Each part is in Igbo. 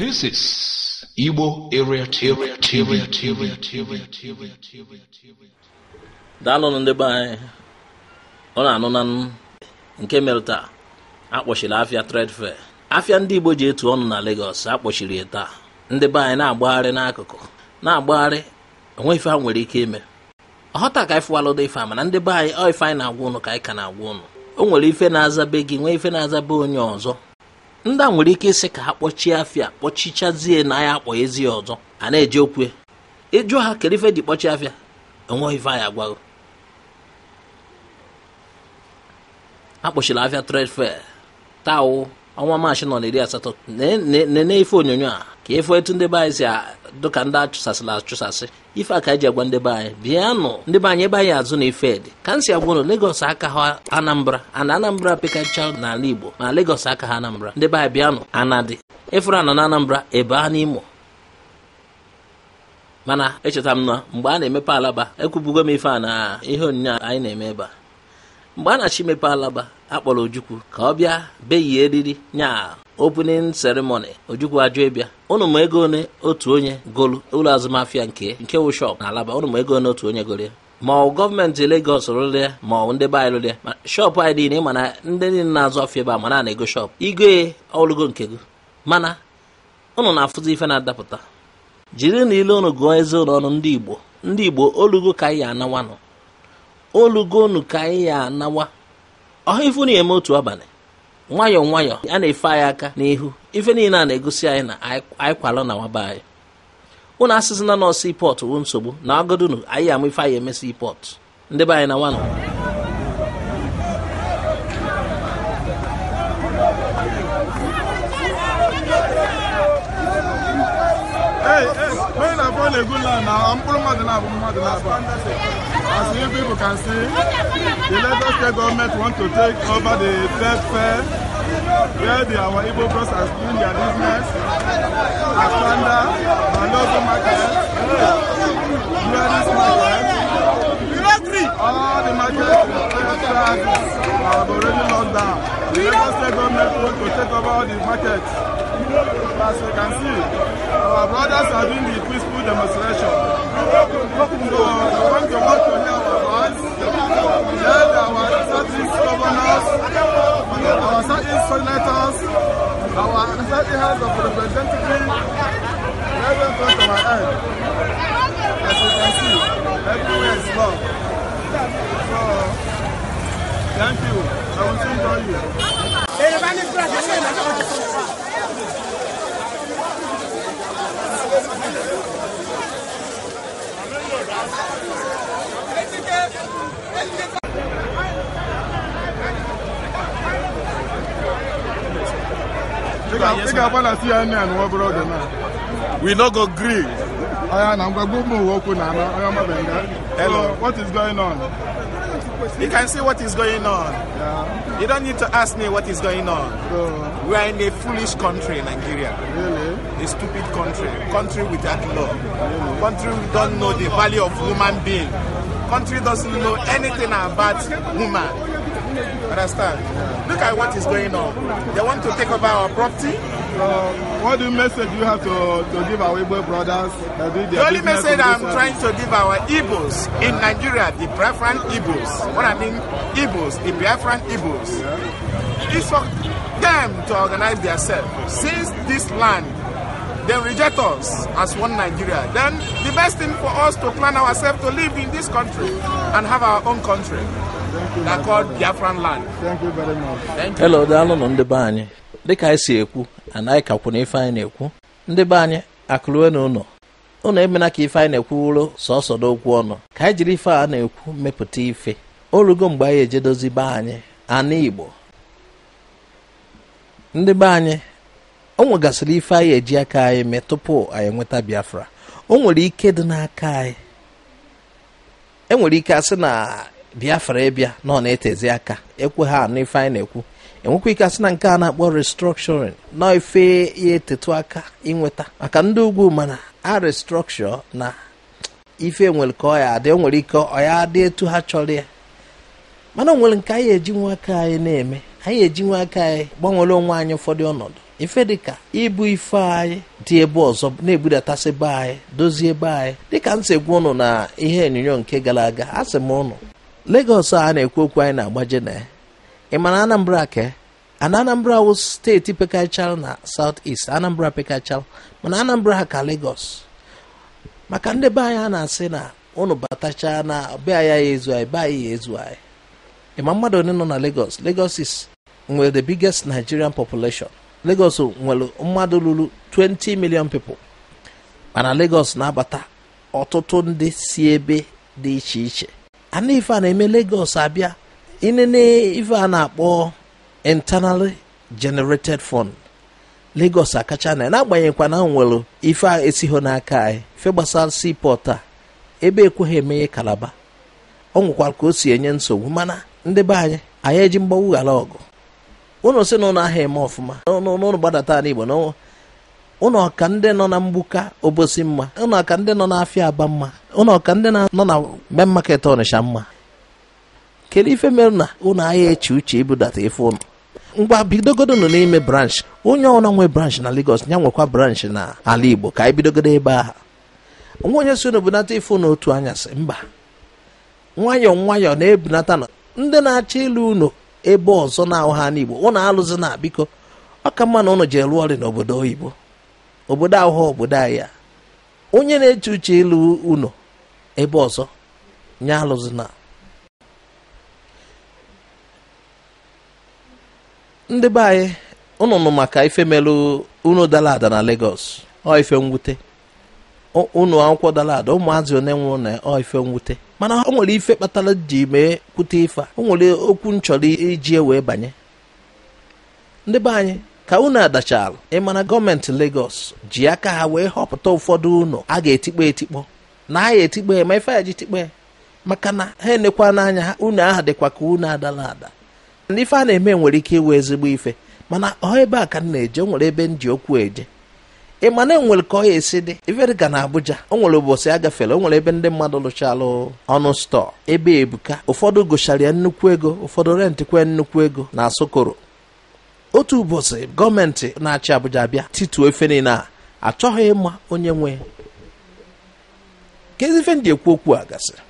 This is Igbo Area TV. ndị be anyị ọ na-anụ na nụ nke mere taa akpọchiri afịa trade fair afịa ndị Igbo ji etu ọnụ na Lagos akpọchiri ya taa ndị be anyị na-agbagharị n'akụkụ na-agbagharị ife nwere ike ime ọghọta ka anyị alụda ife mana ndị be anyị ọ ife anyị na-agwa ụnụ ka anyị ka na-agwa ụnụ o nwere ife na-azabe gị nwee ife na-azabe onye ọzọ ndị a nwere ike ịsị ka ha kpọchie afịa kpọchichazie na ya akpọ ezi ọzọ a na eji okwu ịjụ ha kere ife ji kpọchie afịa enweghị ife anyị agwago akpọchiri afịa fe taa ọnwa maachị nọ na iri asatọ nene ife onyonyo a ka ịfụ e etu ndị be anyị si dụka ndị achụsasịla achụsasị ife aka eji agwa ndị be anyị bịanụ ndị be anyị ebe anyị azụ na ife dị ka m si agwa ụnụ aka ha Anambra ana Anambra pekacha n'ala Igbo ma legos aka ha Anambra ndị be anyị bịanụ anadị ịfụrụ anọ na Anambra ebe a n'Imo mana echeta m na mgbe a na-emepe alaba ekwubugo m ife a na ihe onyinye anyị na-eme ebe a mgbe a na-achọ imepe alaba akpọrọ Ojukwu ka ọ bịa beyie eriri nya opening ceremony ojukwu ajụ ịbịa ụnụ ma ego one otu onye golu ụlọ azụmahịa nke nke wụ shọp na alaba ụnụ ma ego one otu onye golu ya ma ọ gọọmenti legos rụrụ ya ma ọ ndị be anyị rụrụ ya ma shọpụ anyị dị na ịma na ndị niile na-azụ afịa ebe a ma na ego shọpụ igoe ọlụgo nke gị mana ụnụ na-afụzi ife na-adapụta jiri na ile ụnụ gụọ eze ụlọ ọnụ ndị Igbo ndị Igbo olugo ka anyị ya anawanụ olugo unu ka anyị ya anawa ọha ifu na eme otu abalị nwayọọ nwayọọ a na-efe anyị aka n'ihu ife niile a na-egosi anyị na anyị na nwaba anyị ụnụ asịzina nọ sii pọtụ wụ nsogbu na agodunu anyị ama ife anyị eme sii pọtụ ndị be anyị na nwanụ As you people can see, the Lagos State government want to take over the third fair where the, our Igbo bros are doing their business, Aspanda, Malogo market, Juarez market, all the markets have already locked down. The Lagos State government want to take over all the markets. As you can see, our brothers are doing the peaceful demonstration. So, I want to work on our voice, let our Southeast governors, our Southeast senators, our Southeast House of Representatives, let them come to my end. As you can see, everywhere is love. So, thank you. I will see you. Yorùbá ní kúrò àti We no go gree. Aya na Hello, what is going on? You can see what is going on. Yeah. You don't need to ask me what is going on. So, we are in a foolish country, Nigeria. Really? A stupid country. Country without law. Really? Country don't know the value of human being. country doesn't know anything about women. Understand? Look at what is going on. They want to take over our property. Uh, what do message you have to, to give our Igbo brothers? The only message I'm trying to give our Igbos in Nigeria, the Biafran Igbos, what I mean Igbos, the Biafran Igbos, It's for them to organize themselves. Since this land, they reject us as one Nigeria, then the best thing for us to plan ourselves to live in this country and have our own country that called Biafran land. Thank you very much. Thank you. Hello, daalụ nụ ndị be anyị dịka anyị si ekwu and anyị kakwụ na ife anyị na-ekwu ndị be anyị akụlue na ụlọ ụlọ emena ka ife anyị na-ekwu wụrụ sọsọ n'okwu ọnụ ka anyị jiri ife a na-ekwu mepụta ife orugo mgbe anyị ejedozi be anyị anụ Igbo ndị be anyị o nwegasịrị ife anyị eji aka anyị mee tupu anyị nweta Biafra o nwere ike dị n'aka anyị enwere ike asị na biafra ịbịa nọ na-etezi aka ekwe ha anụ ife anyị na-ekwu enwekwa ike asị na nke a na-akpọ restructuring na ife ya etetu aka inweta maka ndị ugwu mana a restructure na ife nwere ka ọ ya adị nwere ike ọ ya adị etu ha chọrọ ya mana o nwere nke anyị eji nwa aka anyị na-eme anyị eji nwa aka anyị gbanwere onwe anyị ụfọdụ ọnọdụ ife dịka ibu ife anyị dị ebe ọzọ na-ebudatasị be anyị dozie be anyị dịka nsegbu ụnụ na ihe onyonyo nke gara aga a sị m ụnụ Lagos a na-ekwu okwu anyị na-agbaje na ya ị ma na Anambra ke Anambra wụ steeti pekachara na South ist Anambra pekachara mana Anambra ha ka Lagos maka ndị be anyị a na-asị na ụnụ batacha na be anyị ya ezu anyị be anyị ya ezu anyị ịma mmadụ onye nọ na Lagos Lagos is nwere the biggest Nigerian population Lagos nwere mmadụ ruru 20 million people mana Lagos na-abata ọtụtụ ndị si ebe dị iche iche ana a na-eme Lagos abịa inene ife a na-akpọ internally generated fund Lagos akacha na n'agbanyeghịkwa na nwere ife a esigho n'aka anyị fe gbasara seaport a ebe ekweghị emeghe Kalaba ọ nwekwara ka o si enye nsogbu mana ndị be anyị anyị eji mgbawughara ọgụ ụnụ si na ụnụ ahịa eme ọfụma n'ụnụ gbadata n'igbo na ụnụ ka ndị nọ na mgbuka obosi mma ụnụ ka ndị nọ n'afịa aba mma ụnụ ka ndị nọ na main market ọnịsha mma kedu ife mere na ụnụ ahịa eche uche ibudata ife ụnụ ngwa bidogodo nọ n'ime branch onye ọna nwe branch na Lagos ya nwekwa branch na ala Igbo ka anyị bidogodo ebe ahụ nwa onye si na-ebunata ife otu anyasị mba nwayọọ nwayọọ na-ebunata na ndị na acha ịlụ unu ebe ọzọ na-ahụ ha n'Igbo ụnụ alụzi na biko ọ ka mma na ụnụ ji lụọ ọrị n'obodo oyibo obodo ahụ obodo anyị ya onye na-eche uche ịlụ ụnụ ebe ọzọ nye alụzi na ndị be anyị ụnụ maka ife melụ unu dara ada na Lagos ọ ife mwute ụnụ akwụkwọ dara ada ụmụazị one nwụrụ na ife mwute mana ọ nwere ife kpatara ji mee kwute ife a o nwere okwu nchọrọ iji e wee banye ndị be anyị ka unu adachara ịmara gọọmenti Lagos ji aka ha wee họpụta ụfọdụ ụnụ a ga-etikpọ etikpọ na a ya etikpe ma ife ya ji maka na ha enekwa n'anya ha unu aha dịkwa ka unu adala ada na ife a na-eme nwere ike iwe ezigbo ife mana ọ ebe a ka m na-eje nwere ebe m ji okwu eje ị ma enwere ka ọ ya esi dị iverika na abuja o nwere ụbọchị agafela o nwere ebe ndị mmadụ lụchalụ ọnụ stọọ ebe ebuka ụfọdụ gụchara ya nnukwu ego ụfọdụ rentị kwe nnukwu ego na asokoro otu ụbọchị gọọmenti na-achị abuja bịa titu efe niile a achọghị ịma onye nwe kedu ife ndị ekwu okwu a gasịrị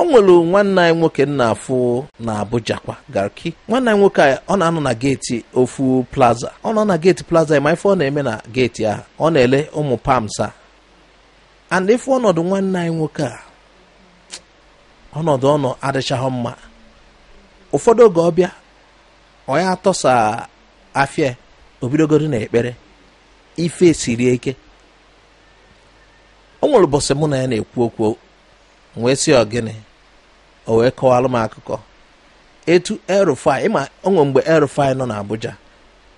o nwere nwanne anyị nwoke nna afụ na Abuja kwa garki nwanne anyị nwoke ọ na-anọ na geeti ofu plaza ọ nọ na geeti plaza ma ife ọ na-eme na geeti ahụ ọ na-ele ụmụ pamsa and ife ọnọdụ nwanne anyị nwoke a ọnọdụ ọnọ adịchaghị mma ụfọdụ oge ọbịa ọ ya atọsa afịa obidogoro na ekpere ife siri ike o nwere ụbọchị mụ na ya na-ekwu okwu wee sị ọ gịnị o wee kọwalụ m akụkọ etu el ịma onwe mgbe el nọ nọ n'Abuja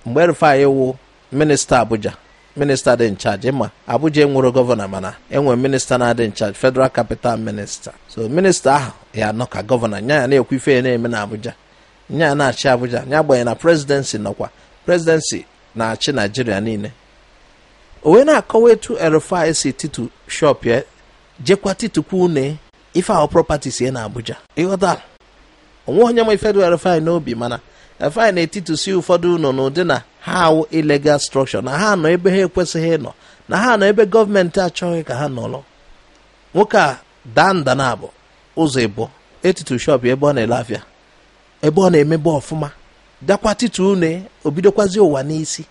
mgbe el wụ minista Abuja minista dị nchaji ịma Abuja enwere gọvanọ mana enwe minista na-adị nchaji federal capital minista so minista ahụ ya nọ ka gọvanọ nya ya na-ekwu ife ya na-eme na Abuja nya ya na-achị Abuja nya gbanye na presidensi nọkwa presidensi na-achị Naijiria niile o wee na-akọwa etu el si titu shop ya jekwa titukwa une ife ahụ property sie na Abuja ịghọta onwe onye nwe federal n'obi mana refine n'etiti si ụfọdụ na n'ụdị na ha awụ ilegal structure na ha nọ ebe ha ekwesịghị ịnọ na ha nọ ebe gọọmenti achọghị ka ha nọrọ nwoke a daa nda na abụ ụzọ ịbụ etitu shop ebe ọ na-ele afịa ebe ọ na-emebe ọfụma dakwa titu une obidokwazi ụwa n'isi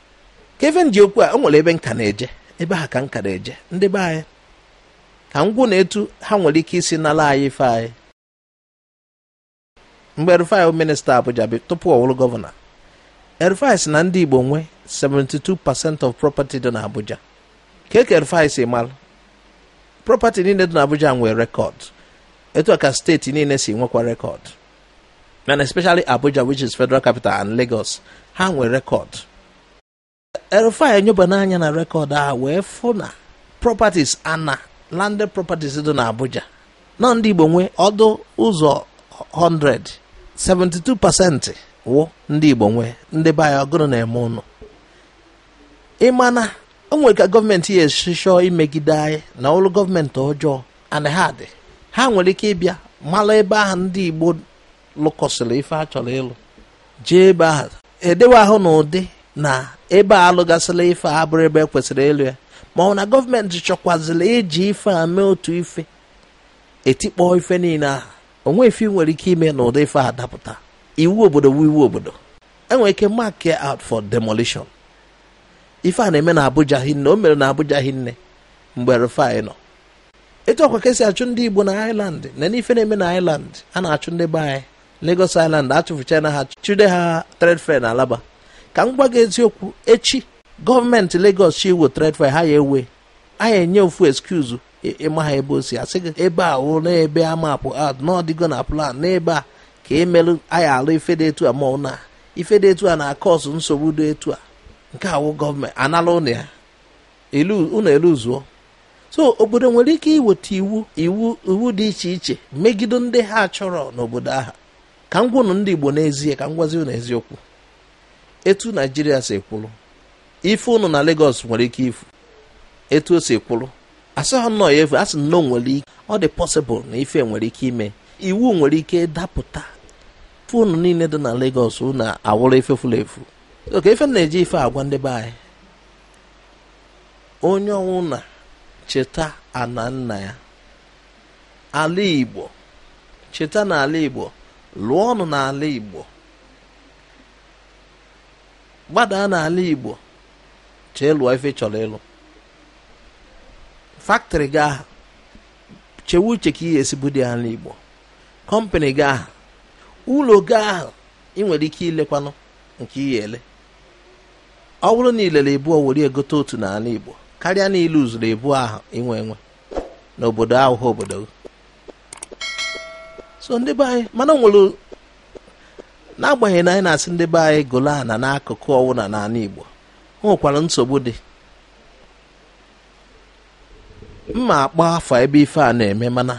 kevin ji okwu a o nwere ebe nka na-eje ebe ha ka nka na-eje ndị be anyị ka m na etu ha nwere ike isi nala anyị ife anyị mgbe Rufai minista Abuja bụ tupu ọ wụrụ gọvanọ Rufai si na ndị Igbo nwe 72% of property dị n'Abuja ka eke Rufai si mara property niile dị n'Abuja nwee rekọd etu ka steeti niile si nwekwa rekọd mana especially Abuja which is federal capital and Lagos ha nwere rekọd Rufai enyoba n'anya na rekọd a wee fụ na properties ana landed properties dị n'Abuja nọ ndị Igbo nwee ọdụ ụzọ 100 72 pasentị wụ ndị Igbo nwee ndị be ọgụrụ na-eme ụnụ ịmana o nwere ka gọọmenti ya esichọọ imegide anyị na ọrụ gọọmenti ọjọọ ana ha dị ha nwere ike ịbịa mara ebe ahụ ndị Igbo lụkọsịrị ife a chọrọ ịlụ jee ebe ahụ edewe ahụ na ụdị na ebe a alụgasịla ife a abụrụ ebe ekwesịrị ịlụ ya ma ọ na gọọmenti chọkwazịla eji ife a mee otu ife etikpọ ife niile ahụ onwe ife nwere ike ime na ụdị ife adapụta. iwu obodo wu iwu obodo enwere ike mark out for demolition ife a na-eme na Abuja hinne o mere na Abuja hinne mgbe Rufai nọ etu ọkwa ka esi achụ ndị Igbo na iland na n'ife na-eme na iland a na-achụ ndị be anyị iland Island achụfụchana ha chụde ha trade fair na Alaba ka m gwa gị eziokwu echi gọọmenti legos chi wetara efe ha ya ewe anyị enye ofu excuse ịma ha ebe o si asị gị ebe a wụ na ebe ad n'ọdịgo na plan n'ebe um, a ka emelụ anyị alụ ife dị etu a ma na ife dị etu a na-akọsụ nsogbu dị etu a nke awụ gọọmenti anala ụnụ ya ụnụ eluzuo so obodo nwere ike iweta iwu iwu iwu dị iche iche megide ndị ha chọrọ n'obodo aha ka m gwụnụ ndị Igbo n'ezie ka m gwazi ụnụ eziokwu etu Naijiria si kwụrụ ife unu na Lagos nwere ike ifu etu o si kwụrụ asịghị nnọọ ya efu asị na o nwere ike ọ dị pọsịbụl na ife nwere ike ime iwu nwere ike dapụta unu niile dị na Lagos na awụrụ ife furu efu oke ife na-eji ife agwa ndebe be anyị onye ọnwụ na cheta ana nna ya ala Igbo cheta na Igbo lụọ ọnụ n'ala Igbo gbadaa n'ala Igbo chee ife chọrọ ịlụ factory gị chewe uche ka ị esibu dị ala igbo kọmpani kọmpanị gị aha ụlọ gị ị nwere ike ilekwanụ nke ihe ele ọ bụrụ na ilere ebu were egote otu n'ala Igbo karịa na ilu ebu ahụ inwe enwe n'obodo ahụhụ obodo gị so ndị be anyị mana nwere n'agbanyeghị na anyị na-asị ndị be anyị golo na n'akụkụ ọwụna n'ala Igbo o nwekwara nsogbu dị mma akpọ afọ ebe ife a na-eme mana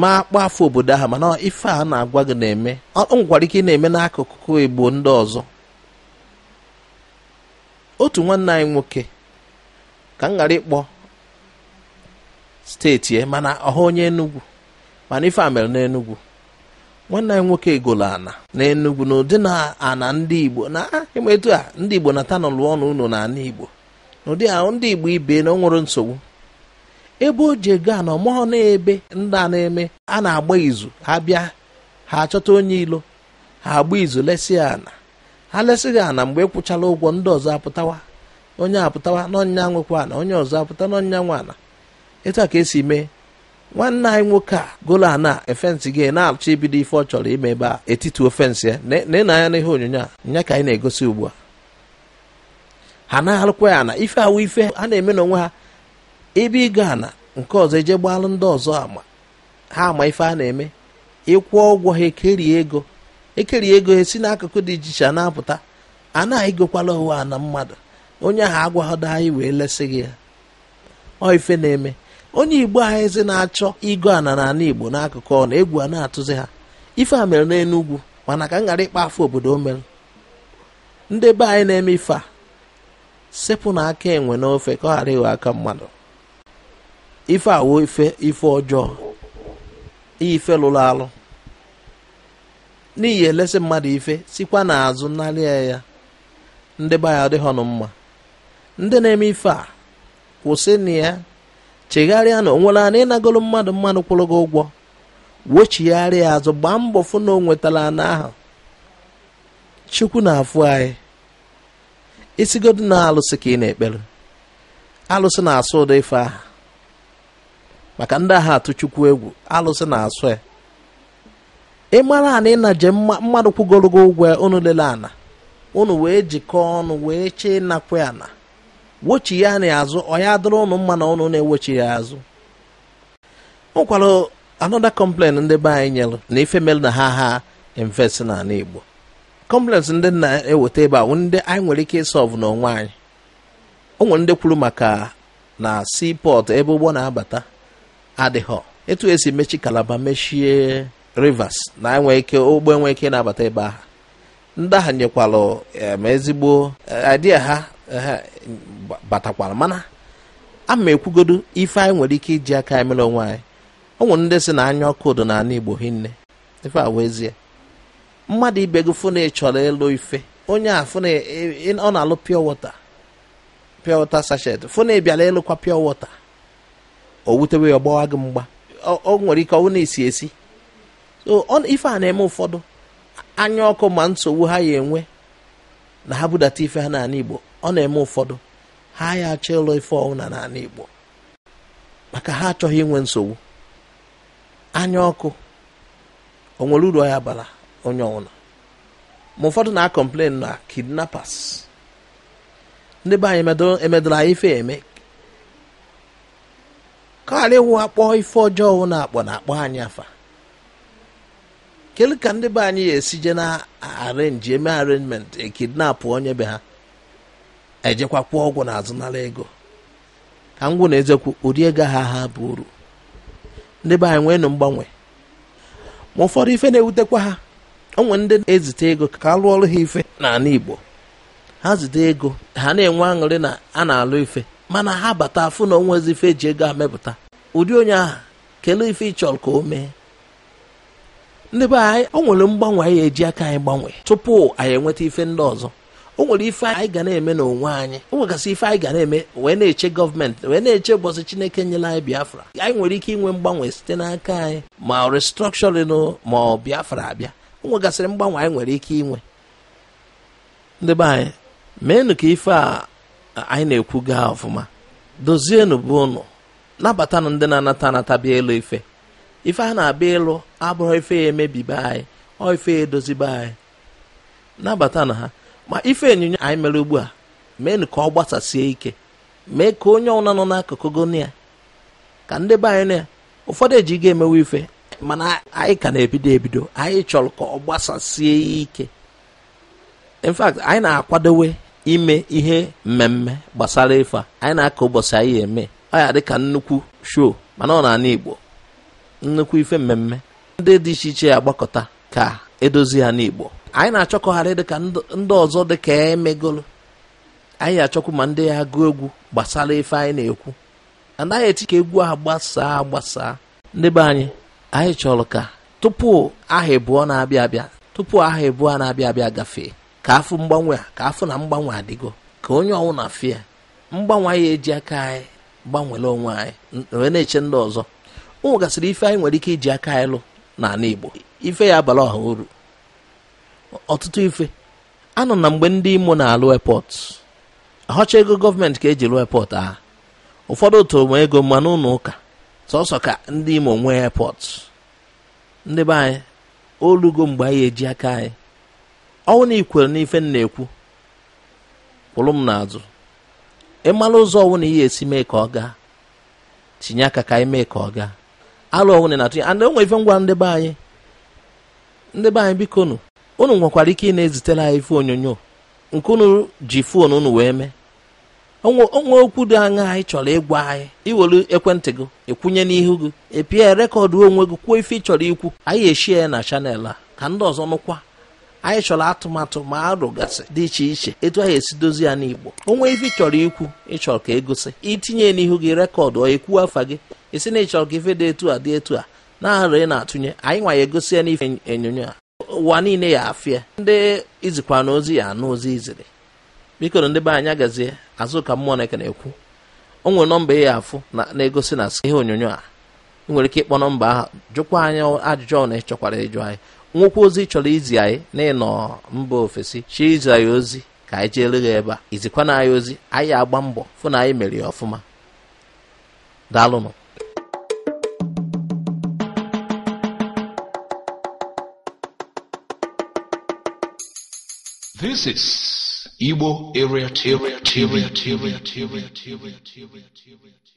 ma akpọ afọ obodo ahụ mana ife a na-agwa gị na-eme ọ nwekwara ike ị na-eme n'akụkụ igbo ndị ọzọ otu nwanne anyị nwoke ka m ghara ịkpọ steeti ya mana ọha onye Enugu mana ife a mere n'Enugu nwanne anyị nwoke egolo ana na enugwu na ụdị na ana ndị igbo na ah, emetu a ndị igbo na tanụ lụọ ọnụ ụnụ na ana igbo na ụdị ahụ ndị igbo ibe na ọ nsogbu ebe o ji ego ana ọmụọ na-ebe ndị a na-eme a na-agba izu ha bịa ha achọta onye ilo ha agba izu lesi ana ha lesịghị ana mgbe e kwụchala ụgwọ ndị ọzọ apụtawa onye apụtawa n'ọnya nwekwa ana onye ọzọ apụta n'ọnya nwa ana etu a ka esi mee nwanne anyị nwoke a golu ana efensị gị na-achọ ibido ife ọ chọrọ ime ebe a etiti ofensị ya na-ene anya n'ihe onyonyo a nya ka anyị na-egosi ugbu a ha na-alụkwa ya na ife awụ ife ha na-eme na onwe ha ebe ịga na nke ọzọ eje gbalụ ndị ọzọ ama ha ama ife a na-eme ịkwụ ụgwọ ha ekerie ego ekerie ego ha si n'akụkụ dị iche iche na-apụta a na-egokwala ụwa na mmadụ onye ahụ agwaghọdo anyị wee lesị gị ya ọ ife na-eme onye igbo ha na-achọ ịgụ ana na ala igbo n'akụkụ ọ na egwu a na-atụzi ha ife a mere n'enugwu mana ka m ghara ịkpa afọ obodo o mere ndị be anyị na-eme ife a sepụ na aka enwe n'ofe ka ọ ghara ịghọ aka mmadụ ife awo ife ife ọjọọ ife lụrụ alụ n'ihi elesị mmadụ ife sikwa n'azụ narịa ya ndị be anyị adịghọ nụ mma ndị na-eme ife a kwụsị na ya chegharịa na onwere na ịnagolo mmadụ mmadụ kwụrụ gị ụgwọ wochigharịa azụ gbaa mbọ fụ na o nwetara ana ahụ chukwu na-afụ anyị isigodu na alụsị ka ị na-ekpere alụsị na-asụ ụdị ife aha maka ndị agha atụ chukwu egwu alụsị na-asụ ya ị mara ana ịnaje mmadụ kwụgoro gị ụgwọ unu lele ana unu wee jikọọ ọnụ wee chee ịnakwu ana wochi ya na azụ ọ ya dịrị ụnụ mma na ụnụ na-ewochi ya azụ o nwekwara anọda ndị be anyị nyere na ife mere na ha ha invest na ala Igbo kọmplens ndị na-eweta ebe a ndị anyị nwere ike ịsọvụ n'onwe anyị o nwere ndị kwuru maka na seaport ebe ụgbọ na-abata adịghọ etu esi mechi kalaba mechie rivers na nwee ike ụgbọ enwe ike na-abata ebe ahụ ndị ahụ nyekwalụ ezigbo eh, idea ha batakwala mana ama ekwugodu ekwugodo ife anyị nwere ike iji aka emere mere onwe anyị o nwere ndị si na anya ọkụ do n'ala igbo hinne ife awụ ezie mmadụ ibe gị fụ na ị chọrọ ịlụ ife onye a fụ na ọ na-alụ pure water pure water sachet fụ na ị bịara ịlụkwa pure water o wutewe ya ọgbawa gị mgba o nwere ike ọwụ na-esi esi so ife a na-eme ụfọdụ anya ọkụ ma nsogbu ha ya enwe na ha budata ife ha n'ala igbo ọ na-eme ụfọdụ ha ya achọ ịlụ ife ọwụna n'ala Igbo maka ha achọghị inwe nsogbu anya ọkụ o nwere uru ya bara onye ọwụna ma ụfọdụ na-akọmplen na kidnapas ndị be anyị emedoro anyị ife eme ka ghara ịwụ akpọ ife ọjọọ wụ akpọ na-akpọ anyị afa kedu ka ndị be anyị ga-esije na arenji eme arenjment ekidnapụ onye be ha ejekwa kwụọ ọgwụ na azụnara ego ka ngwụ na ezekwu ụdị ego ha ha bụ uru ndị be anyị nweenụ mgbanwe ma ụfọdụ ife na-ewutekwa ha onwe ndị na-ezite ego ka a lụọ ọrụ ha ife n'ala Igbo ha zite ego ha na-enwe aṅụrị na a na-alụ ife mana ha bata afụ na onwezi ife e ji ego amepụta ụdị onye aha kelee ife ịchọrọ chọrọ ka o mee ndị be anyị o nwere mgbanwe anyị eji aka anyị gbanwee tupu anyị enweta ife ndị ọzọ o nwere ife anyị ga na-eme n'onwe anyị o nwegasị ife anyị ga na-eme wee na-eche gọọmenti wee na-eche ụbọchị chineke nyela anyị biafra anyị nwere ike inwe mgbanwe site n'aka anyị ma restrọkshọrin ma ọ biafra abịa o nwegasịrị mgbanwe anyị nwere ike inwe ndị be anyị meenụ ka ife a anyị na-ekwu gaa ọfụma dozienụ bụ ụnụ nabatanụ ndị na-anata anatabịa elu ife ife a na-abịa ịlụ abụghị ife ya emebibe anyị ọ ife ya edozibe anyị nabatanụ ha ma ife onyinyo anyị mere ugbu a meenụ ka ọ gbasasie ike mee ka onye ọbụla nọ n'akụkụ gonia ka ndị be anyị na ụfọdụ ga emewe ife mana anyị ka na-ebido ebido anyị chọrọ ka ọ gbasasie ike in fact anyị na-akwadowe ime ihe mmemme gbasara ife anyị na akọ ụbọchị anyị eme ọ ya dịka nnukwu show mana ọ na-ana Igbo nnukwu ife mmemme ndị dị iche iche agbakọta ka edozi ha n'Igbo anyị na-achọkọgharị dịka ndị ọzọ dịka emegolo anyị achọkwu ma ndị ya gụọ egwu gbasara ife anyị na-ekwu anaghị echi ka egwu ahụ gbasaa gbasaa ndị be anyị anyị chọrọ ka tupu aha ịbụọ na-abịa abịa tupu aha ịbụọ na-abịa abịa gafee ka afọ mgbanwe a ka afọ na mgbanwe adịgo ka onye ọnwụ na afịa mgbanwe anyị eji aka anyị gbanwere onwe anyị wee na-eche ndị ọzọ ụmụ gasịrị ife anyị nwere ike iji aka anyị lụ n'ala Igbo ife ya abala ọha uru ọtụtụ ife anọ na mgbe ndị imo na-alụ epọt ahọcha ego gọọmenti ka eji lụọ epọt a ụfọdụ tụrụ m ego mmanụ ụlọ ụka sọsọ ka ndị imo nwee epọt ndị be anyị olugo mgbe anyị eji aka anyị ọnwụ na ikwere na ife na-ekwu kwụrụ m n'azụ ịmara ụzọ ọnwụ na ihe esi mee ka ọ gaa tinye aka ka anyị mee ka ọ gaa alụ ọnwụ na atụnye and enwe ife ngwa ndị be anyị ndị be anyị biko nụ unu nwekwara ike ị na ezitere anyị ife onyonyo nke unu ji fon unu wee mee onwe okwu dị anya anyị chọrọ ịgwa anyị iwere ekwentị gị ịkwụnye n'ihu gị epie rekọdụ onwe gị kwuo ife ị chọrọ ikwu anyị eshie ya na chanel a ka ndị ọzọ nụkwa anyị chọrọ atụmatụ ma arụgasị dị iche iche etu anyị esi dozi ya n'igbo onwe ife ị chọrọ ikwu ịchọrọ ka egosi itinye n'ihu gị rekọdụ ọ ekwu afa gị esi na ịchọrọ ka ife dị etu a dị etu a na-ahara ị na-atụnye anyị nwa ya egosi ya n'ife onyonyo a ụwa niile ya afịa ndị izikwa na ozi ya anụ ozi iziri biko na ndị be anyị agazie azụka mmụọ na-eke na-ekwu o nwere nọmba ya afụ na-egosi na ihe onyonyo a ị nwere ike ịkpọ nọmba ahụ jụkwa anyị ajụjụ ọ na ịchọkwara ịjụ anyị nwokwu ozi chọrọ izi anyị na ịnọ mba ofesi chi izi anyị ozi ka anyị jee ya ebe a izikwa na anyị ozi anyị agba mbọ fụ na anyị mere ya ọfụma daalụnụ This is Igbo area, area, area, area, area, area, area, area, area, area.